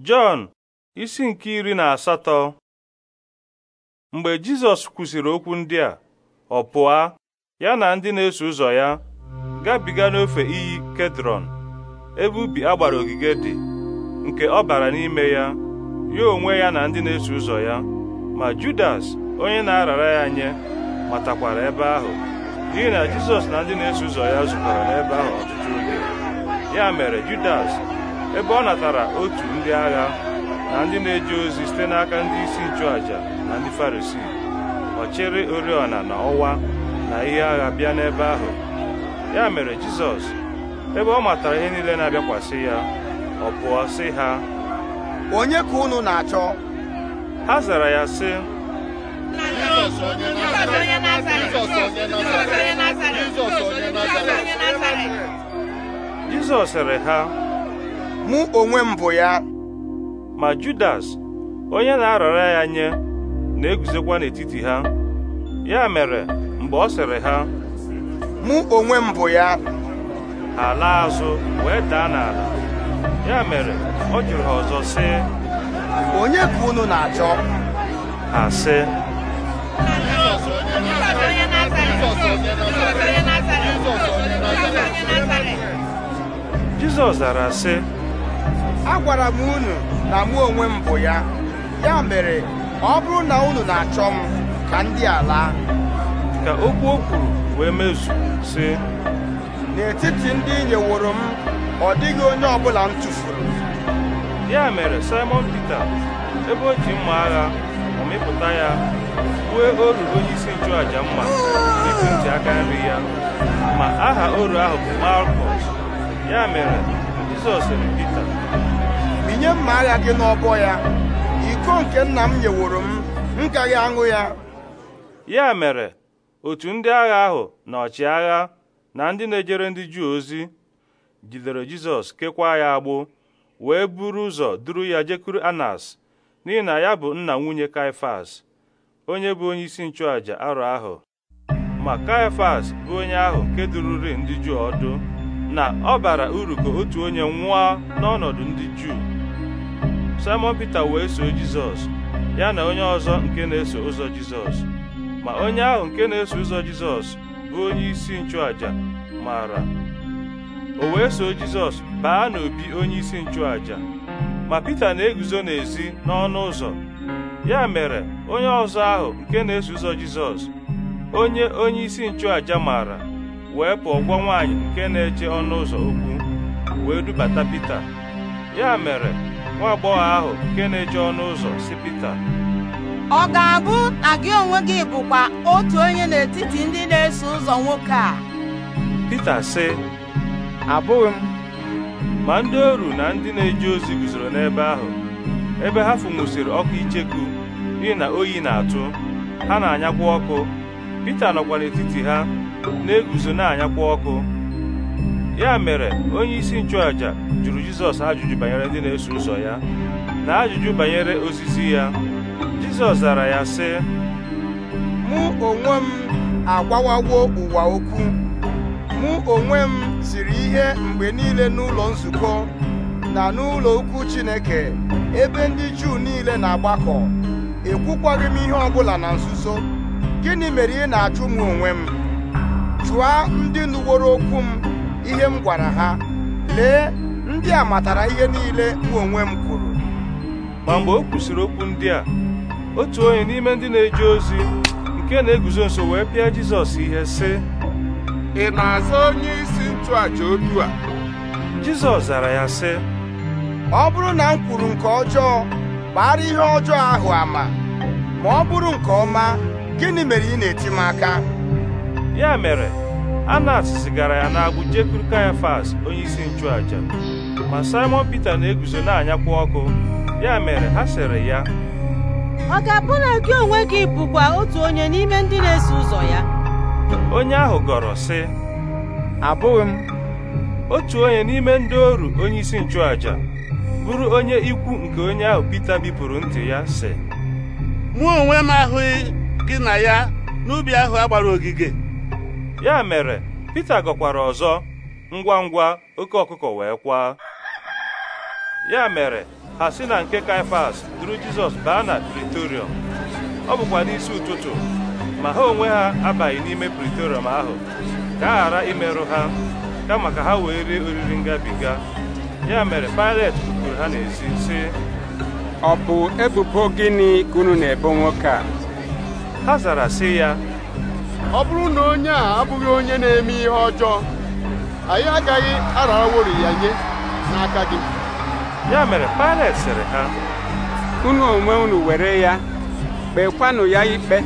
Jọn isi nke iri na asatọ mgbe Jizọs kwusiri okwu ndị a ọ pụa ya na ndị na-eso ụzọ ya gabiga n'ofe iyi Kedrọn ebe ubi agbara ogige dị nke ọ bara n'ime ya ya onwe ya na ndị na-eso ụzọ ya ma Judas onye na-arara ya nye matakwara ebe ahụ n'ihi na Jizọs na ndị na-eso ụzọ ya zukọrọ n'ebe ahụ ọtụtụ oge ya mere Judas ebe ọ natara otu ndị agha na ndị na-eje ozi site n'aka ndị isi aja na ndị farisi, ọ chịrị oriọna na ọwa na ihe agha bịa n'ebe ahụ ya mere Jizọs ebe ọ matara ihe niile na-abịakwasị ya ọ pụọ sị ha onye ka unu na-achọ ha zara ya sị Jizọs sịrị ha mụ onwe m bụ ya ma Judas onye na-arara ya nye na-eguzokwa n'etiti ha ya mere mgbe ọ sịrị ha mụ onwe m bụ ya ha laa azụ wee daa n'ala ya mere ọ jụrụ ha ọzọ sị onye ka unu na-achọ ha sị Jizọs zara sị agwara m unu na mụ onwe m bụ ya ya mere ọ bụrụ na unu na-achọ m ka ndị a ka okwu o kwuru wee mezu sị n'etiti ndị nyeworo m ọ dịghị onye ọbụla m tụfuru ya mere Simon Peter ebe o ji mma agha ọmịpụta ya kwue oru onye isi nchụàja mma n'ịpụ ntị aka nri ya ma aha oru ahụ bụ Malkọs ya mere Jizọs sịrị Pita minye mma agha gị n'ọbọ ya iko nke nna m nyeworo m m aṅụ ya ya mere otu ndị agha ahụ na ọchịagha na ndị na-ejere ndị Juu ozi jidere Jizọs kekwa ya agbụ wee buru ụzọ duru ya jekuru Anas n'ihi na ya bụ nna nwunye Kaifas, onye bụ onye isi nchụàja arọ ahụ ma Kaifas bụ onye ahụ nke dururi ndị Juu ọdụ na ọ bara uru ka otu onye nwụọ n'ọnọdụ ndị Juu Simon Peter wee soo Jizọs ya na onye ọzọ nke na-eso ụzọ Jizọs ma onye ahụ nke na-eso ụzọ Jizọs bụ onye isi nchụaja maara. o wee soo Jizọs baa n'obi onye isi nchụaja ma Pita na-eguzo n'ezi n'ọnụ ụzọ ya mere onye ọzọ ahụ nke na-eso ụzọ Jizọs onye onye isi nchụaja maara wee pụọ gwa nwaanyị nke na-eche ọnụ ụzọ okwu wee dubata Pita ya mere nwa agbọghọ ahụ nke na-eche ọnụ ụzọ si Pita ọ ga-abụ na gị onwe gị bụkwa otu onye n'etiti ndị na-eso ụzọ nwoke a Pita sị abụghị m ma ndị oru na ndị na-eje ozi guzoro n'ebe ahụ ebe ha fụnwusịrị ọkụ icheku n'ihi na oyi na-atụ ha na-anyakwa ọkụ Pita nọkwa n'etiti ha na-eguzo na-anyakwa ọkụ ya mere onye isi nchụàjà jụrụ Jizọs ajụjụ banyere ndị na-eso ụzọ ya na ajụjụ banyere osisi ya Jizọs zara ya sị mụ onwe m agbawawo ụwa okwu mụ onwe m siri ihe mgbe niile n'ụlọ nzukọ na n'ụlọ ukwu Chineke ebe ndị Juu niile na-agbakọ ekwukwaghị m ihe ọbụla na nzuzo gịnị mere ị na-ajụ m onwe m jụa ndị nụworo okwu m ihe m gwara ha lee ndị a matara ihe niile mụ onwe m kwuru ma mgbe o kwusịrị okwu ndị a otu onye n'ime ndị na-eje ozi nke na-eguzo nso wee pịa Jizọs ihe sị ị na-aza onye isi nchụàja otu a Jizọs zara ya sị ọ bụrụ na m kwuru nke ọjọọ gbara ihe ọjọọ ahụ ama ma ọ bụrụ nke ọma gịnị mere ị na-eti m aka ya mere anas zigara ya n'agbụ jekwuru kayafas onyeisi nchụaja ma simon pete na-eguzo na-anyakwa ọkụ ya mere ha sịrị ya ọ ga-abụ na gị onwe gị bụkwa otu onye n'ime ndị na-eso ụzọ ya onye ahụ gọrọ sị abụghị m otu onye n'ime ndị oru onyeisi nchụaja bụrụ onye ikwu nke onye ahụ pete bipụrụ ntị ya sị mụ onwe m ahụghị gị na ya n'ubi ahụ a gbara ogige ya mere Pita gọkwara ọzọ ngwa ngwa oke ọkụkọ wee kwaa ya mere ha si na nke Kaifas duru Jizọs baa na Pritorium ọ bụkwa n'isi ụtụtụ ma ha onwe ha abaghị n'ime Pritorium ahụ ka a ghara imerụ ha kama ka ha wee rie oriri ngabiga ya mere Pilet kwuru ha n'ezi sị ọ bụ ebubo gịnị kunu na-ebo nwoke a ha zara sị ya ọ bụrụ na onye a abụghị onye na-eme ihe ọjọọ anyị agaghị arawori ya nye n'aka gị ya mere Pilet sịrị ha unu onwe unu were ya kpekwanụ ya ikpe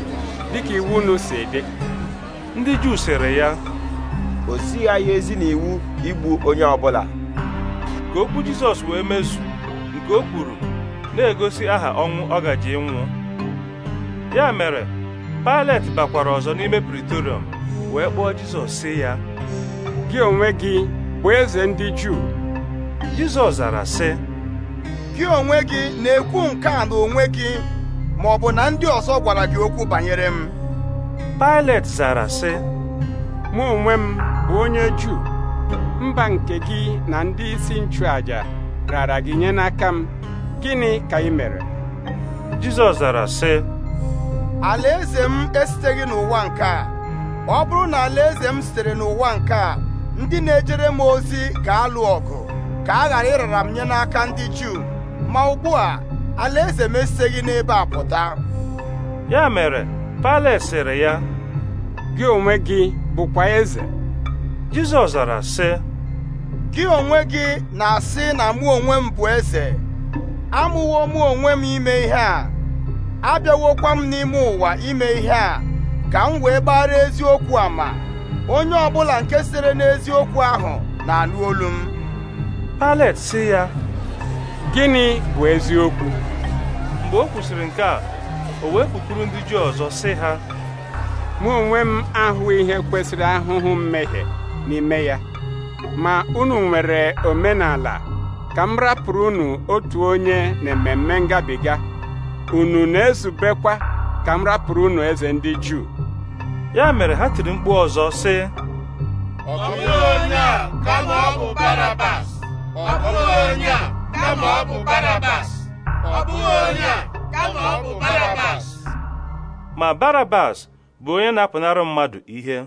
dịka iwu unu si dị ndị Juu sịrị ya o sighị anyị ezi n'iwu igbu onye ọbụla ka okwu Jizọs wee mezu nke o kwuru na-egosi aha ọnwụ ọ gaji nwụọ ya mere Pilet bakwara ọzọ n'ime Praetorium wee kpọọ Jizọs sị ya gị onwe gị bụ eze ndị Juu Jizọs zara sị gị onwe gị na-ekwu nke a na onwe gị ma ọ bụ na ndị ọzọ gwara gị okwu banyere m Pilet zara sị mụ onwe m bụ onye Juu mba nke gị na ndị isi nchụaja rara gị nye n'aka m gịnị ka ị mere Jizọs zara sị alaeze m esiteghị n'ụwa nke a ọ bụrụ na alaeze m sitere n'ụwa nke a ndị na-ejere m ozi ga-alụ ọgụ ka a ghara ịrara m nye n'aka ndị Juu ma ugbu a alaeze m esiteghị n'ebe a pụta ya mere Pales sịrị ya gị onwe gị bụkwa eze Jizọs zara sị gị onwe gị na-asị na mụ onwe m bụ eze amụwo mụ onwe m ime ihe a abịawokwa m n'ime ụwa ime ihe a ka m wee gbara eziokwu ma onye ọbụla nke sere n'eziokwu ahụ na alụ olu m Palet sị ya gịnị bụ eziokwu mgbe o kwụsịrị nke a o wee kwukuru ndị ji ọzọ sị ha mụ onwe m ahụ ihe kwesịrị ahụhụ mmehie n'ime ya ma unu nwere omenala ka m rapụrụ unu otu onye na ememme ngabiga unu na-ezubekwa ka m rapụrụ unu eze ndị Juu ya mere ha tiri mkpu ọzọ sị ọ bụghị onye a kama ọ bụ Barabas ọ bụghị onye a kama ọ bụ Barabas ọ bụghị onye a kama ọ bụ Barabas ma Barabas bụ onye na-apụnara mmadụ ihe